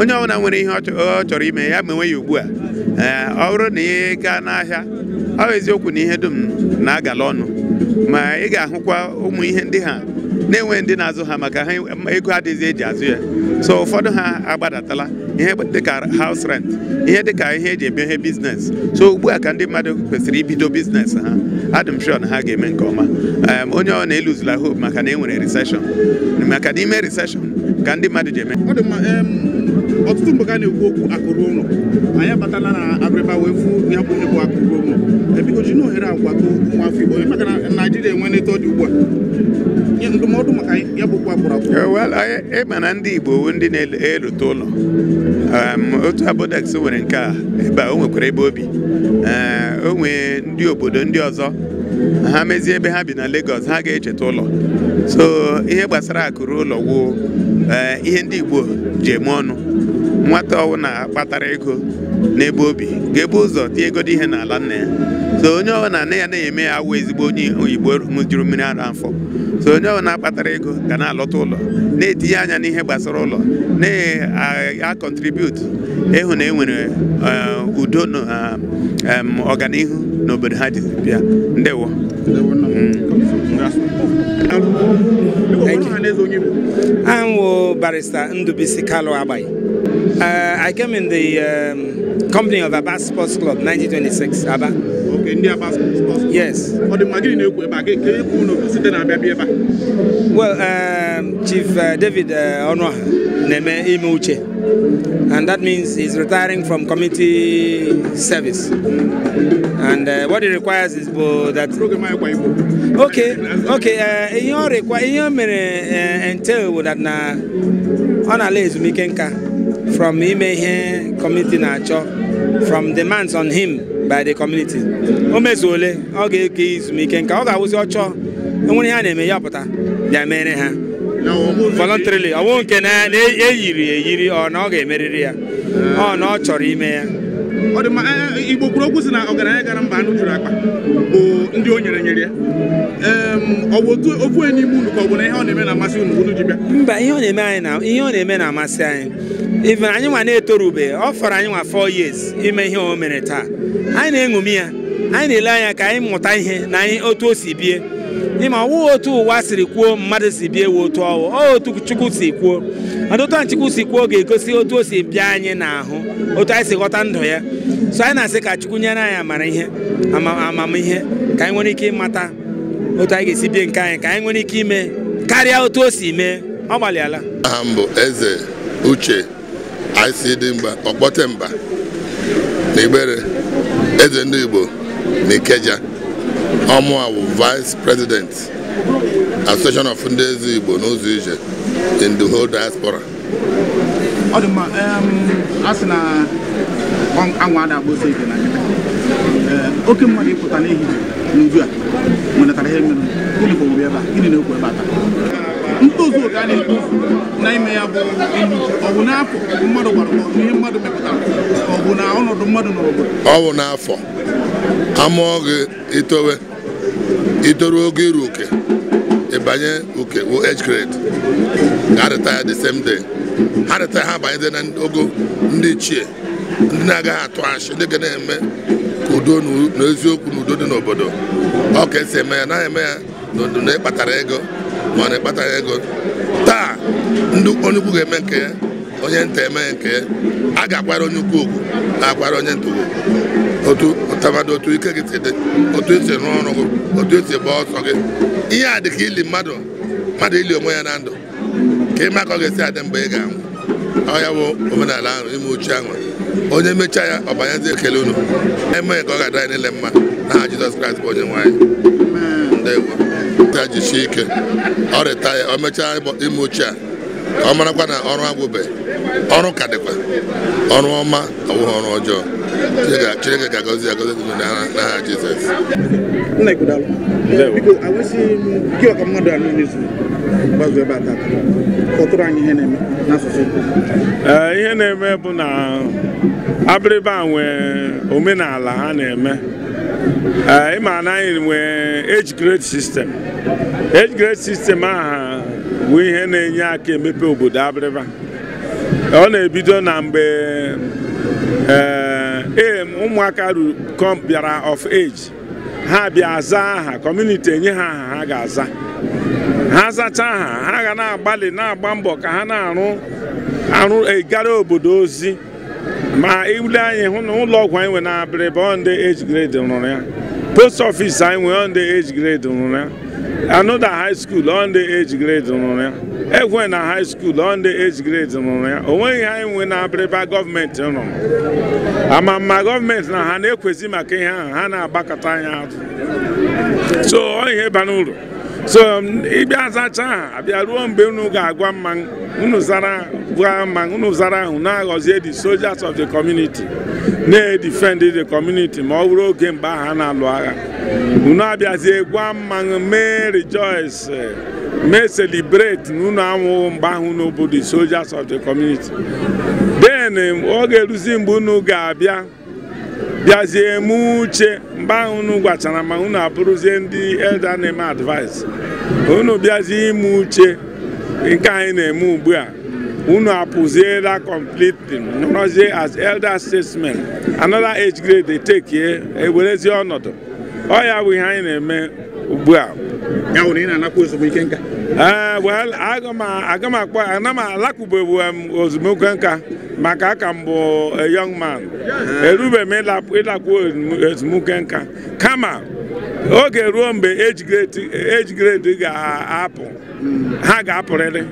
onye ọbụla nwere ihe ọ chọrọ ime ya nwe ya ugbu a ọ bụrụ na ị gaa n'ahịa ọ bụ eziokwu na ihe dum na-agala ọnụ ma ị ga-ahụkwa ụmụ ihe ndị ha na-enwe ndị na-azụ ha maka ha ego adịghị eji azụ ya so ụfọdụ ha agbadatala ihe dịka haus rent ihe dịka ihe eji eme ihe biznes so ugbu a ka ndị mmadụ kwesịrị ibido biznes ha adị m na ha ga-eme nke ọma onye ọ na-eluzula hope maka na e nwere recession maka na ime recession ka ndị mmadụ ji eme ọtụtụ mgbe a na-ekwu okwu akụrụ ụlọ anyị abatala na abịrịba wee fụ ya bụ ihe bụ akụrụ ụlọ ebiko ji na ohere agwado ụmụ afọ Igbo maka na Naijiria enwe neto dị ugbu a ndụmọdụ maka ya bụkwa oh, ịma na ndị Igbo ndị na-erute ụlọ um, otu abodex nwere nke a ebe a o nwekwara ebe obi eh, o nwee ndị obodo ndị ọzọ ha mezie ebe ha bi na legos ha ga-echeta ụlọ so ihe gbasara akụrụ ụlọ wụ, eh, ihe ndị Igbo ji eme ọnụ nwata na kpatara ego n'ebe obi ga-ebu ụzọ tie egodi ihe n'ala nne ya so onye ọbụla nne ya na-eme ya awụ ezigbo onye oyibo ṅụjuru mmiri ara afọ so onye ọbụla na-akpatara ego ga na-alọta ụlọ na-etinye anya n'ihe gbasara ụlọ na-akọntribiut ịhụ na enwere eh, udo na eh, ọganihu n'obodo ha ji bịa ndewo mm. I'm barrister Ndubisi Kalu Abai. Uh, I came in the um, company of Abba Sports Club 1926, Abba. nke ndị Aba Yes. Ọ dị mma gịnị na-ekwu ebe a ga eke ekwu na site na abịa ebe a. Well, um, Chief uh, David uh, Ọnụaha na-eme ime uche and that means he's retiring from committee service. And uh, what he requires is both that. Okay, okay. Uh, ihe ọ rekwa ihe o mere uh, entail bụ that na ọ na-ala ezumike nka from ime ihe community na-achọ from demands on him. by the community o mezuole ọ ga-eke izumike nka ọ ga-awụzi ọchọ enwere ihe a na-eme ya pụta ya mere ha voluntarily ọwụ nke na-eyiri eyiri ọ na ọ ga-emerịrị ya ọ na ọ chọrọ ime ya e, e, igbo kwuru okwu si na ọgaranya gara mba anụ juru akpa bụ ndị o nyere nyere ya ọ bụ otu ofu onye n'ime unu ka ọ bụ na ihe ọ na-eme na-amasị unu unu ji bịa mba ihe ọ na-eme anyị na ihe ọ na-eme na-amasị anyị even anyị nwa na-etorube ọ fọrọ anyị nwa 4 years ime ihe o mere taa anyị na-eṅomi ya anyị na-ele anya ka anyị mụta ihe na anyị otu o si bie ịma ọwụ otu ụwa siri kwuo mmadụ si bie wee otu ọwụ ọ otu chukwu si kwuo ọdụtụ chukwu si kwuo ga-egosi otu o si bịa anyị n'ahụ otu anyị si ghọta ndụ ya so anyị na-asị ka chukwu nyere anyị amara ihe amamihe ka anyị nwere ike ịmata otu anyị ga-esi bie nke anyị ka anyị nwere ike ime karịa otu o si mee ọ gbalịala aha m bụ eze uche anyị si dị mba ọkpọte mba na igbere eze ndị Igbo na Ikeja ọmụa bụ vice president association of ndị eze Igbo n'ụzọ ije in the whole diaspora ọ dị mma a sị na anwa adagba ose ike n'anya oke mmadụ ịpụta n'ehihie n'uju a nwetara ihe mere gịnị ka owuwe ebe a gịnị na-ekwu ebe a taa ntozu oke a na-etozu na ime ya bụ ilu ọ bụ n'afọ ọ bụ mmadụ gwara ihe mmadụ mepụtara ọ bụ na ọnọdụ mmadụ n'obodo ọ bụ n'afọ amụọ gị itowe itoruo oge iru oke ịbanye oke wụ age grade ga retire the same day ha retire na ogo ndị ichie ndị na-agaghị atụ achị ndị ga na-eme ka udo na eziokwu na udo dị n'obodo ọ ka esi eme ya naghị eme ya na ịkpatara ego mana ịkpataghị ego taa ndị onye ukwu ga-eme nke ya onye nta eme nke ya a ga-akwara onye ukwu na-akwara onye nta okwu otu ụtabadị otu ike gị si dị otu esi rụọ ọrụ gị otu esi gba ọsọ gị ihe a dị ka ili mmadụ mmadụ ili onwe ya na ndụ ka ịma ka gị ga-esi adị mgbe ị ga-anwụ ọ ya bụ omenala ahụ ime uche ahụ onye mechaa ya ọ banyezi ekele unu emeghị ka ọ ga-adịrị niile mma n'aha Jizọs Kraịst bụ onye nwaanyị anyị E ya jisie ike ọ retaya o mechaa ime ochie a ọ marakwa na ọrụ agwụbe ọrụ ka dịkwa ọrụ ọma ọwụghị ọrụ ọjọọ chineke ga-agọzi agọzi dị n'aha jizọs ihe na-eme bụ na abịrịba nwee omenala ha na-eme Eh, ma na anyị nwee age grade system age grade system aha bụ ihe na-enye aka emepe obodo abịrịba ọ na-ebido na mgbe ee eh, eh, ụmụaka bịara of age ha bịa aza aha kọmuniti enye ha aha ha ga-aza ha zachaa aha ha ga na-agbalị na-agba mbọ ka ha na-arụ arụ obodo ozi ma ile anyị hụ na ụlọ ọgwụ anyị nwe na abịrịba ndị age grade rụrụ ya post office anyị nwe ndị age grade rụrụ ya anoda high school ndị age grade rụrụ ya ekwe na high school ndị age grade rụrụ ya onweghị anyị nwe na abịrịba gọọmenti rụrụ ama ma gọọmenti na ha na-ekwezi maka ihe ahụ ha na-agbakọta anya azụ so ọ ihe bara uru so um, ịbịa zacha a, abịa ruo mgbe unu ga-agwa mma unu zara mma unu ahụ na-aghọzie the soldiers of the community na-edifend the community ma ọ bụrụ oge mgbe aha na-alụ agha unu abịazie gwa mmanụ mee rejoice mee celebrate na unu anwụghị mgbe ahụ nobodo the soldiers of the community den um, ọ ga-eruzi mgbe unu ga-abịa bịazie eme uche mgbe ahụ unu gwachara ma unu abụrụzie ndị elda na-eme advice unu bịazie ime uche nke anyị na-eme ugbu a unu apụziela completely nọrọzie as elder statesman another age grade dey take here ewerezie ọnọdụ ọ ya bụ ihe anyị na-eme ugbu a ya wụrụ ị na-anakwa ezumike nka eh, well aga m akpọ ana m alakụbebu m ozumike nka maka aka mbụ bụ young man erube m ịlakwu ezumike nka kama oge ruo mgbe age grade ga-apụ hmm. ha ga-apụrịrị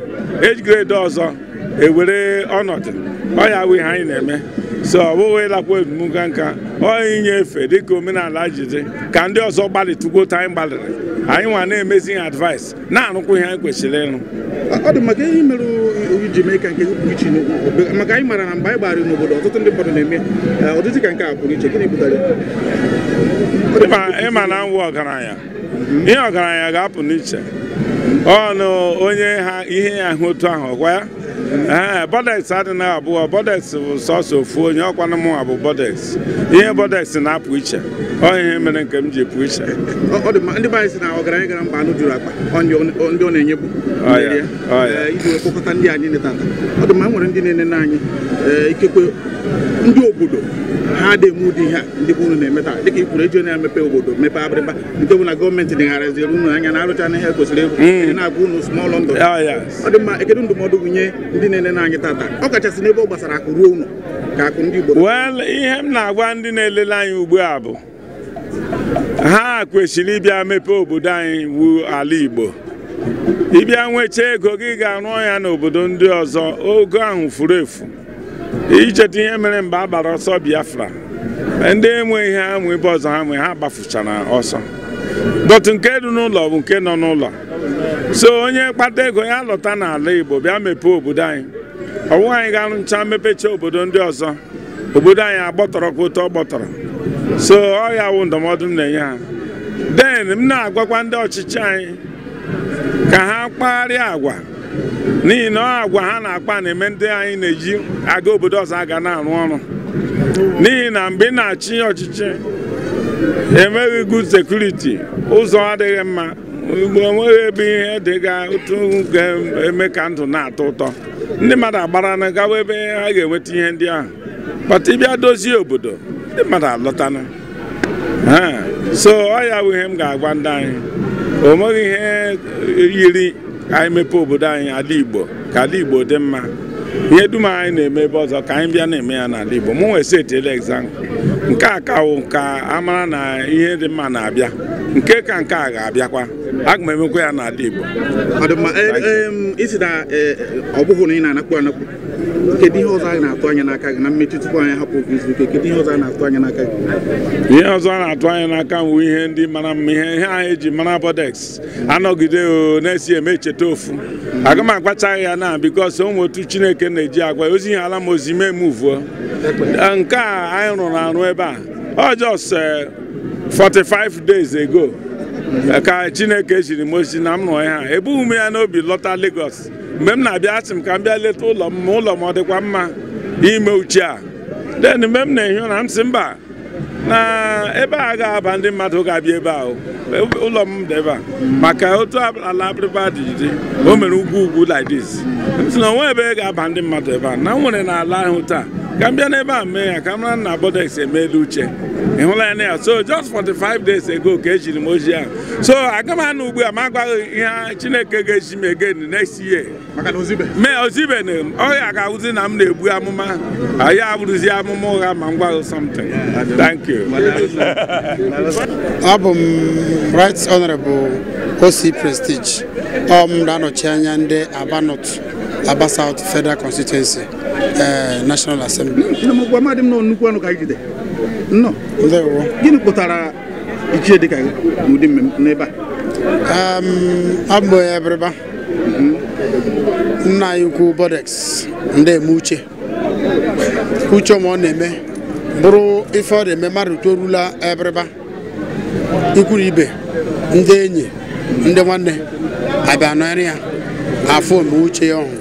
age grade ọzọ ewere ọnọdụ ọ ya wụ anyị na-eme so ọ bụghị ịlakwa ebumnka nka ọ inye efe dịka omenala jide ka ndị ọzọ gbalịtụgote anyị gbalịrị anyị nwa na-emezi ihe advice na-arụkwa ihe anyị kwesịrị ịrụ ọ dị maka ihe mere iji mee nke pụrụ iche maka anyị mara na mgbe anyị gbara n'obodo ọtụtụ ndị mmadụ na-eme e, ọdịdị ka nke a pụrụ iche gịnị pụtara ịma na nwụ ọgaranya ihe ọgaranya ga-apụ n'iche ọnụ onye ha ihe ya hụ otu ahụ ọkwa ya Eh, bọdeks adị adịghị abụọ bodex bụ sọsọ ofu onye ọkwana mụnwa bụ bodex ihe bọdeks na-apụ iche ọ ihe mere nke m ji pụ iche ndị be anyị si na ọgaranya gara mba anụ juru akpa ndị ọ na-enyebu eh, iji wee kpọkọta ndị anyị netata ọ dị mma e nwere ndị na-enene anyị eh, ikekwe ndị obodo ha dị emu ụdị ihe ndị bụ unu na-emeta dịka ikwuru eji na-emepe obodo mepee abịrịba nke bụ na gọọmenti dịgharịziri unu anya na arụcha na ihe kwesịrị egwu hmm. na-agụ unu small London ah, ọ dị mma ekedu ndụmọdụ nye ndị na-ele n'anyị tata ọ kachasị n'ebe ọ gbasara akụ ruo unu ka akụ ndị Igbo ihe m na-agwa ndị na-elele anyị ugbu a bụ ha kwesịrị ịbịa mepee obodo anyị wu ala Igbo ịbịa nwechaa ego gị ga-arụ ya n'obodo ndị ọzọ ogo ahụ furu efu icheta ihe mere mgbe a gbara ọsọ biafra ndị enweghị ihe amụ ebe ọzọ ha nwe ha gbafuchara ọsọ dọtụ nke dị n'ụlọ bụ nke nọ n'ụlọ so onye kpata ego ya lọta n'ala igbo bịa mepee obodo anyị ọwụwa anyị ga-arụcha mepecha obodo ndị ọzọ obodo anyị agbọtọrọ kwụta ọgbọtọrọ. ọ gbọtọrọ so ọ ya wụ ndụmọdụ m na-enye ha den m na-agwakwa ndị ọchịchị anyị ka ha kpagharịa agwa n'ihi na ọ agwa ha na-akpa na-eme ndị anyị na-eji aga obodo ọzọ aga na-arụ ọrụ n'ihi na mgbe ị na-achị ọchịchị enweghị good sekuriti. ụzọ adịghị mma mgbe onweghị ebe ihe dịga otu ga-eme ka ndụ na-atọ ụtọ ndị mmadụ agbara na gawa ebe ha ga-enweta ihe ndị ahụ kpata ịbịa dozie obodo ndị mmadụ alọtana so ọ ya bụ ihe m ga-agwa ndị anyị o nweghị ihe yiri ka anyị mepee obodo anyị ala igbo ka ala igbo dị mma ihe dum anyị na-eme ebe ọzọ ka anyị bịa na-eme ya n'ala igbo mụ nwee setele egzampụ nke a ka wụ ka amara na ihe dị mma na-abịa nke ka nke a ga-abịakwa aga emekwa ya n'ala igbo eh, ọ bụghị na ị na-anakwu anakwu kedu ihe ọzọ a na-atụ anya n'aka gị na mmechi tupu anyị hapụ oge kedu ihe ọzọ a na-atụ anya n'aka gị ihe ọzọ a na-atụ anya n'aka m ihe ndị mara mma ihe ihe anyị ji mara bodex anọgide o na-esi eme echeta ofu aga m agbachaghị ya na bikos ụmụ otu chineke na-eji agwa ozi ihe ala m ozi mee m uvuo nke a anyị rụrụ arụ ebe a ọ just 45 eh, days ago ka chineke jiri m ozi na m nọ ya ha ebughị m ya n'obi lọta Lagos mgbe m na-abịa asị m ka m bịa leta ụlọ m ma ụlọ m ọ dịkwa mma ime uche a den mgbe m na-ehi ụra m sị mba na ebe a ga-aba ndị mmadụ ga-abịa ebe ahụ ụlọ m dị ebe a maka otu ala abịrịba dị dị o mere ugwu ugwu like this m sị na onwe ebe ga-aba ndị mmadụ ebe a na m nwere na ahụ taa ka m bịa n'ebe a mee ya ka m mara na bodex emeela uche ị hụla ya na ya so just five days ago ka ejiri m ojii ahụ so aga m anụ ugbu a agwaghị ihe chineke ga-eji m egen next year mee ozibeghị m ọrịa ga-awụzi na m na-egbu amụma anyị abụrụzi amụma ụgha ma m gwarụ something thank you abụ m right honorable osi prestige ọ m na-anọchi anya ndị aba north aba south federal constituency eh, national assembly gịnị kpụtara ichie dịka mmemme n'ebe a nna anyị ukwu Bodex ndị eme uche uche ma ọ na-eme bụrụ ife ọ na-eme mmadụ torula ebreba, ikwuru ibe ndị enyi ndị nwanne abịa nọrị ya afọ ome uche ya ọhụụ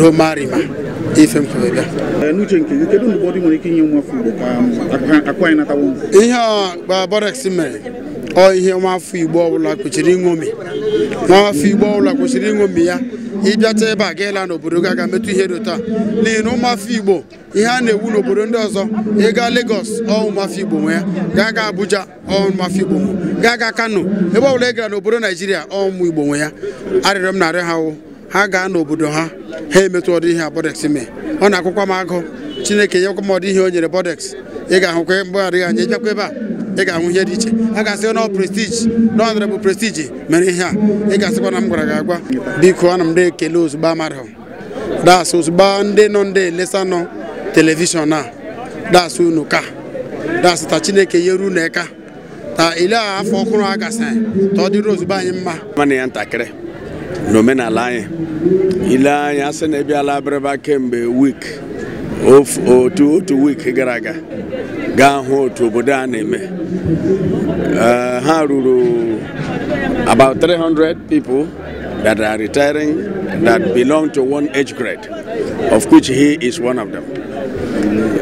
romarima ife mkpebịa um, ihe ọ Bodex mere ọ ihe nwafọ igbo ọbụla kwesịrị ịṅomi igbo ọbụla kwesịrị ịṅomi ya ịbịata ebe a gaela n'obodo gị metụ ihe dị taa n'ihi na ụmụafọ igbo ihe a na-ewu n'obodo ndị ọzọ ịga Lagos ọ ụmụafọ igbo nwe ya gaa ga Abuja ọ ụmụafọ igbo nwe gaa ga Kano ebe ọbụla ị gara n'obodo Naijiria ọ ụmụ igbo nwe ya arịrịọ m narị ha wụ ha gaa n'obodo ha ha emetụ ọdụ ihe Bodex ọ na-akwụkwa m agụ Chineke nyekwa m ọdụ ihe o nyere Bodex ị ga-ahụkwa mgbe adịghị anya ịbịakwa ebe a ị ga-anwụ ihe dị iche a ga-asị na prestiji nọndra bụ prestiji mere ihe a ị ga-asịkwa na m gwara gị agwa biko ana m na-ekele ozugbo mmadụ das ozugbo ndị nọ ndị elesa nọ telivishọn a das unu ka das ta chineke nyere unu eka ta ile a afọ ọhụrụ a gasịrị ta ọ dịrị ozugbo anyị mma mana ya ntakịrị n'omenala anyị ile anyị asị na ebiala abịrịba kemgbe wik otu otu wik gara aga gaa hụ otu obodo a na-eme eh, ha ruru about 300 people that are retiring that belong to one age grade of which he is one of them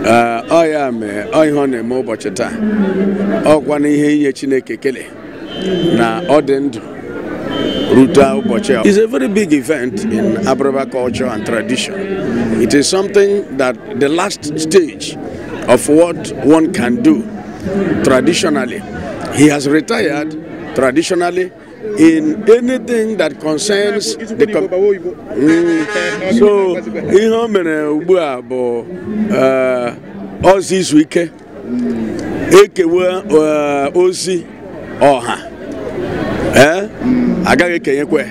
eh, ọ ya mee ọ ihe ọ na-eme ụbọchị taa ọkwa na ihe inye Chineke kele na ọ dị ndụ is a very big event in Abraba culture and tradition. It is something that the last stage of what one can do traditionally. He has retired traditionally in anything that concerns the com mm, so ihe o mere ugbu a bụ uh, ozi izu ike ekewe uh, ozi ọha eh? agaghị ekenyekwe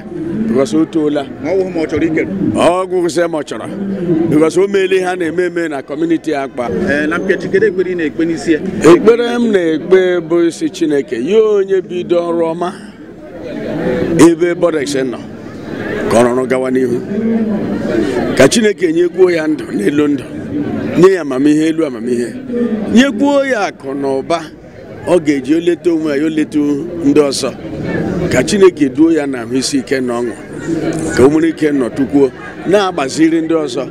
because o toola ọgwụ sị ma ọ chọrọ because o meele ha na-eme eme na kọmuniti akpa ekpere m na-ekpe bụ isi chineke ya onye bido ọrụ ọma ebe bọdex nọ ka ọrụrụ gawa n'ihu ka chineke nyekwuo ya ndụ n'elu ndụ nye ya amamihe elu amamihe nyekwuo ya akụ na ụba ọ ga-eji oleta onwe ya oleta ndị ọzọ ka Chineke duo ya na isi ike na ọṅụ ka o nwere ike nọ tukwuo na-agbaziri ndị ọzọ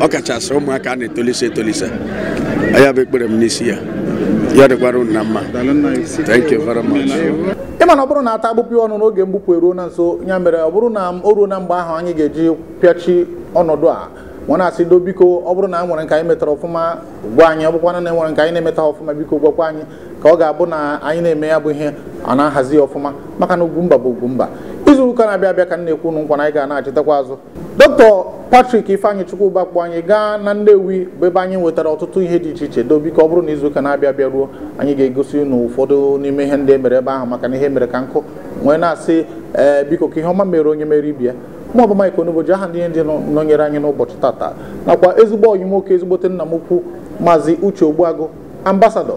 ọ kachasị ụmụaka na-etolise etolise ya bụ ekpere m n'isi ya ya dịkwara unu na mma thank you very much ịma na ọ bụrụ na ata agbụpụ ọnụ n'oge mgbupụ eruo na nso ya mere ọ bụrụ na o ruo na mgbe ahụ anyị ga-eji pịachi ọnọdụ a nwa na-asị do biko ọ bụrụ na a nwere nke anyị metara ọfụma gwa anyị ọ bụkwana na e nke anyị na-emeta ọfụma biko gwakwa anyị ka ọ ga-abụ na anyị na-eme ya bụ ihe ọ na-ahazi ọfụma maka na ugwumba bụ ugwumba izu ụka na-abịa abịa ka m na-ekwu ụnụ nkwa na anyị ga na azụ dọkịta Patrik Ifeanyị Chukwuba kpọ anyị gaa na Nnewi bụ ebe anyị nwetara ọtụtụ ihe dị iche iche dobi ka ọ bụrụ na ụka na-abịa abịa ruo anyị ga-egosi unu ụfọdụ n'ime ihe ndị emere ebe ahụ maka na ihe mere ka nkụ nwee na-asị ee biko ka ihe ọma mere onye mere ibi ya mụ ọbụ Mike aha ndị ihe ndị nọnyere anyị n'ụbọchị tata nakwa ezigbo ọyị nwoke ezigbote nna m ukwu maazị Uche Ogbuagụ ambasadọ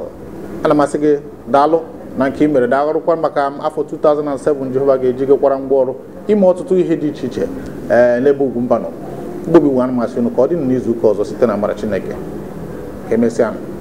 ala masị gị daalụ na nke ị mere dagharụkwa maka afọ 2007 jehova ga eji ngwa ngwaọrụ ime ọtụtụ ihe dị iche iche ee eh, n'ebe ugwu mbanụ mgbobi nwe anụmasị unu ka ọ dị n'izu ụka ọzọ site na mara chineke ka emesịa